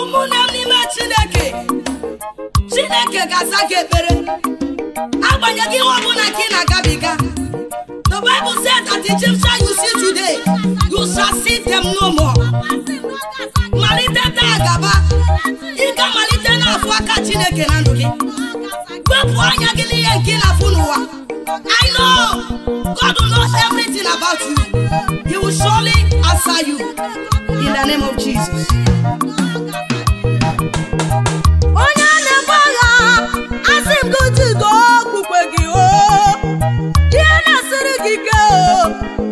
ụmụnne m n'ime chineke chineke ga-aza gị ekpere agbanyeghị ihe ọbụla gị na-agabiga the bible said that the Egyptian you see today you shall see them no more malite taa gaba ị ga-amalite n'afọ aka chineke na ndụ gị na anya gị n'ihe nke na-afụ n'ụwa I know God knows everything about you he will surely answer you in the name of Jesus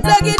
onye gị gị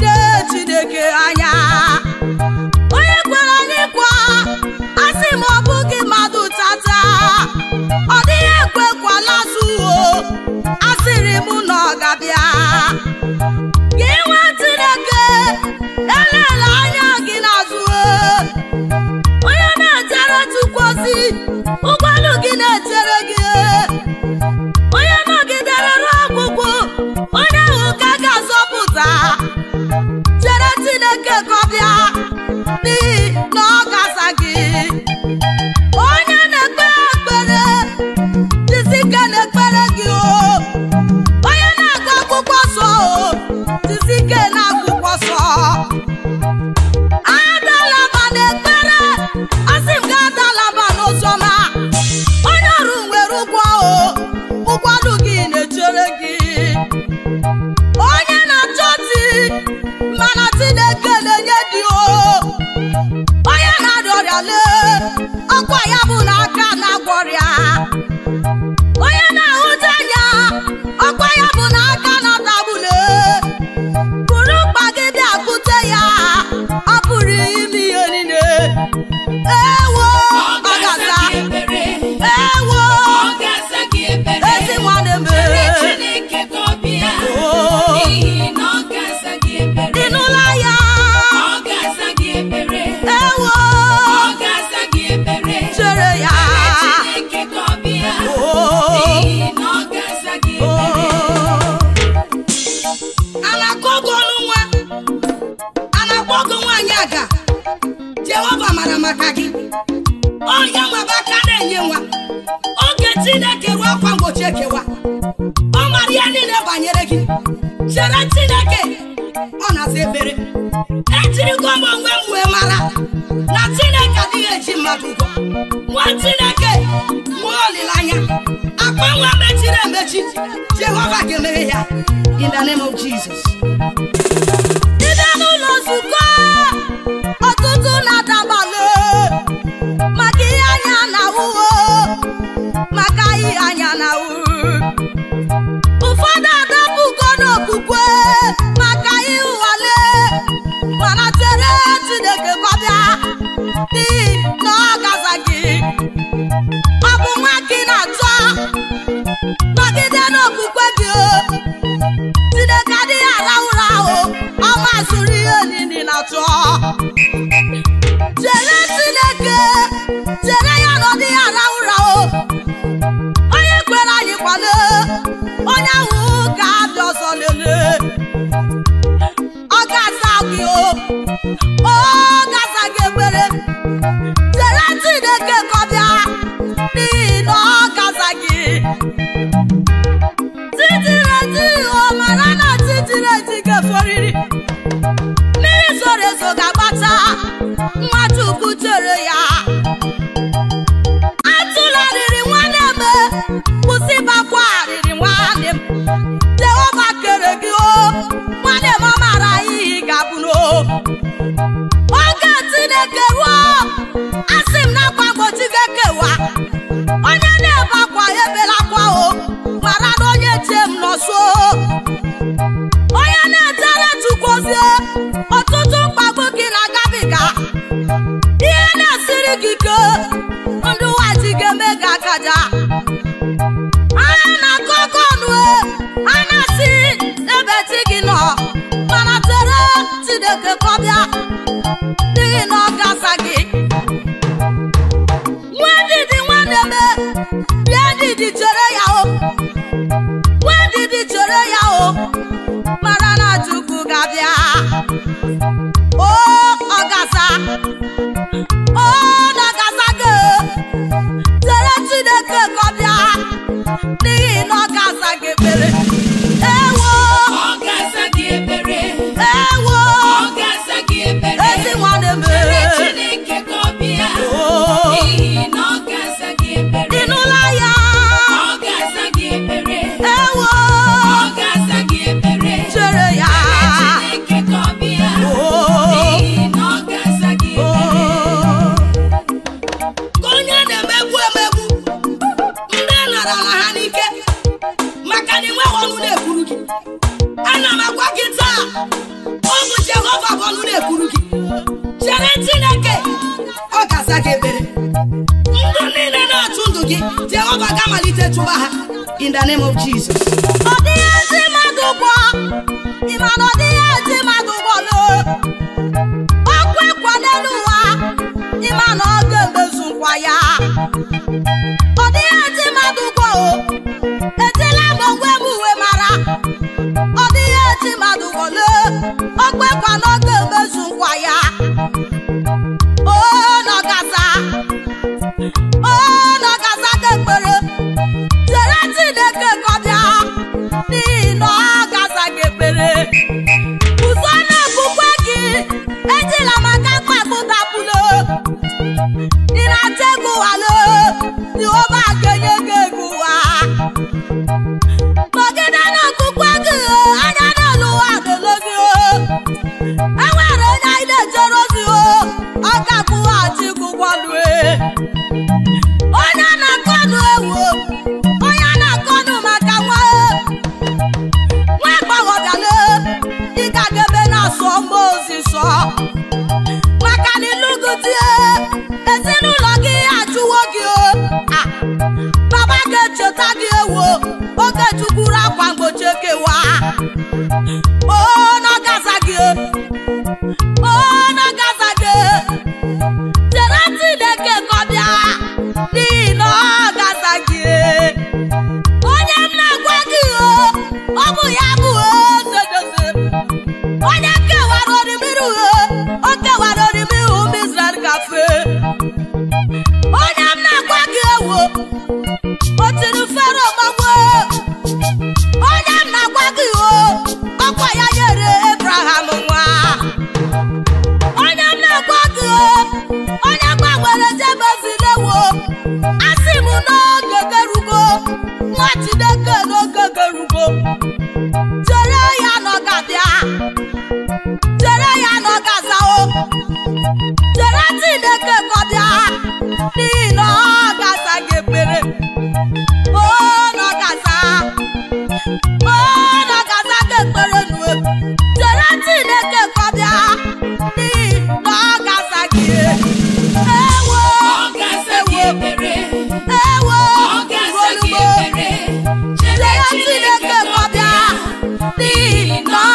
ọkwa ya bụ na aka na-agwọrịa na maka gị onye mgbe aka na-enye nwa oge Chineke ruo akwa mgbochi ekewa ọ mara ya niile banyere gị chere Chineke ọ na-asa ebere ejirigo m onwe m wee mara na Chineke adịghị eji mmadụ ụgwọ nwa Chineke nwee olileanya akpa nwa mechiri emechi Jehova ga-emeghe ya in the name of Jesus atụ ochie m iwe ọnụ na-ekwuru gị ana m agwa gị taa ụmụ Jehova bụ ọnụ na-ekwuru gị chere Chineke ọ ga-aza gị ebere ndụ niile na-achụ ndụ gị Jehova ga malite chụwa ha in the name of Jesus ọ dịghị ezi mmadụ gwọ ịma ọ dịghị ezi Jehova ga-enye gị ego ụwa nọgide na anya na ụwa ga-ele e onye anyị na-ejere ozi ọ ga-akwụghachi gị ụgwọlụ onye na ewu onye na-akọnụ maka nwa nwa agbọghọbịala ị ga-aga ebe na-asụ ewa ona gaza gị na gaza gị jere Chineke ka ọ bịa n'ihi na ọ gaza gị onye m na-agwa O ọ bụ ya bụ edodozi onye kewara orimiru o kewara orimiru Mizrael kafe n'ihi